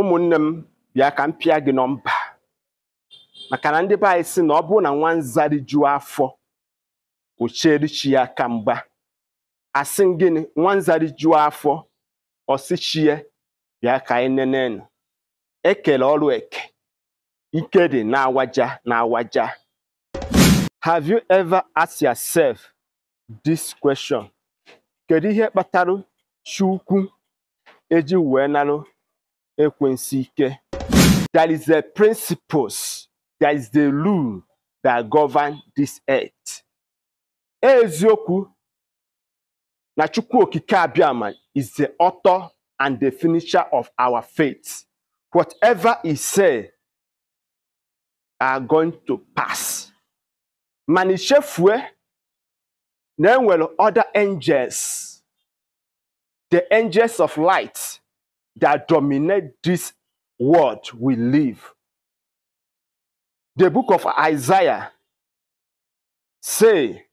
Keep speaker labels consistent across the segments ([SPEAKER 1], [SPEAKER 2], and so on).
[SPEAKER 1] ụmụnne m bịa ka m pịa gị nọmba maka na ndị be anyị si na ọ bụrụ na nwa nzari jụọ afọ ochierichi ya ka mgba asị gịnị nwa nzari afọ ọsichie bịa ka anyị nenenu ekele ọrụ eke ike dị na-awaja na-awaja have you ever asked yourself this question kedu ihe kpatara chukwu eji wee narụ That is the principles, That is the rule that govern this earth. Eziokwu na Chukwu Okike is the author and the finisher of our faith. Whatever he say are going to pass. mana then na other angels the angels of light that dominate this world we live. The book of Isaiah say,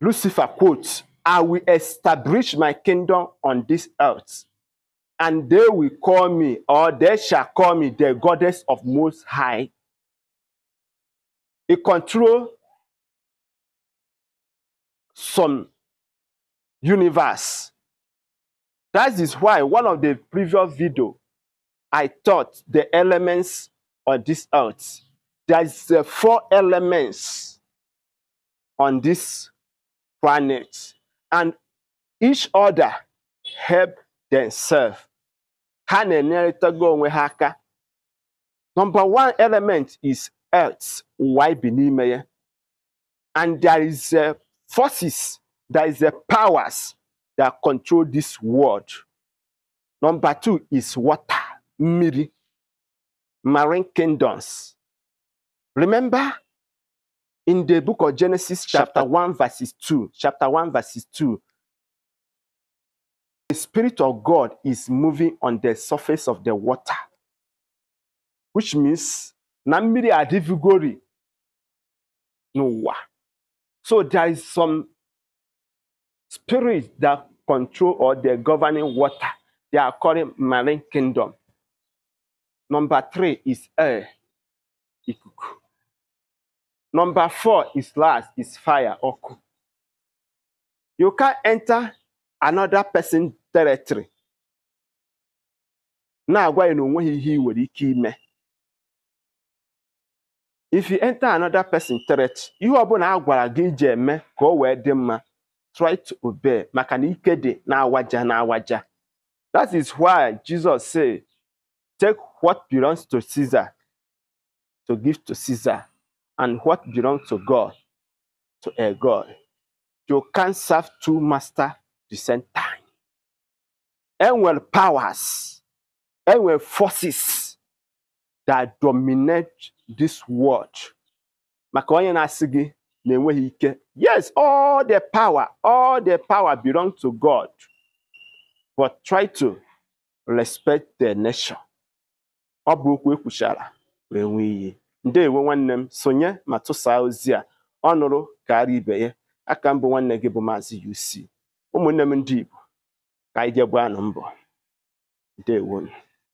[SPEAKER 1] Lucifer quotes, I will establish my kingdom on this earth, and they will call me, or they shall call me the goddess of most high. It control some universe that is why one of the previous video, I taught the elements on this earth. There's uh, four elements on this planet. And each other help themselves. Number one element is earth, Why bi me? And there is uh, forces, there is uh, powers that control this world. Number two is water, miri, marine kingdoms. Remember in the book of Genesis, chapter, 1, verses 2, chapter 1, verses 2, the Spirit of God is moving on the surface of the water, which means Namiri no Noah. So there is some spirits that control or the governing water. They are called marine kingdom. Number three is air. Ikuku. Number four is last is fire You can enter another person territory. Na-agwa ya na onweghị ihe ị nwere ike ime. If you enter another person territory, ihe ọbụla na-agwara gị iji eme ka o wee dị mma try to obey maka na ike na waja na-awaja waja. is why jesus said, take what belongs to caesar to give to caesar and what belongs to god to a god you can't serve two masters the same time well powers well forces that dominate this world maka onye na-enweghị ike yes all the power all the power belong to God but try to respect the nation ọ bụ okwu ekwuchara wee nwee iyi ewe nwanne m sonye ma tụsaa ozi a ọ nụrụ karịa ibe ya aka mbụ nwanne gị bụ maazị UC ụmụnne m ndị Igbo ka anyị jee